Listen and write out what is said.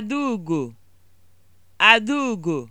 Adaugo, Adaugo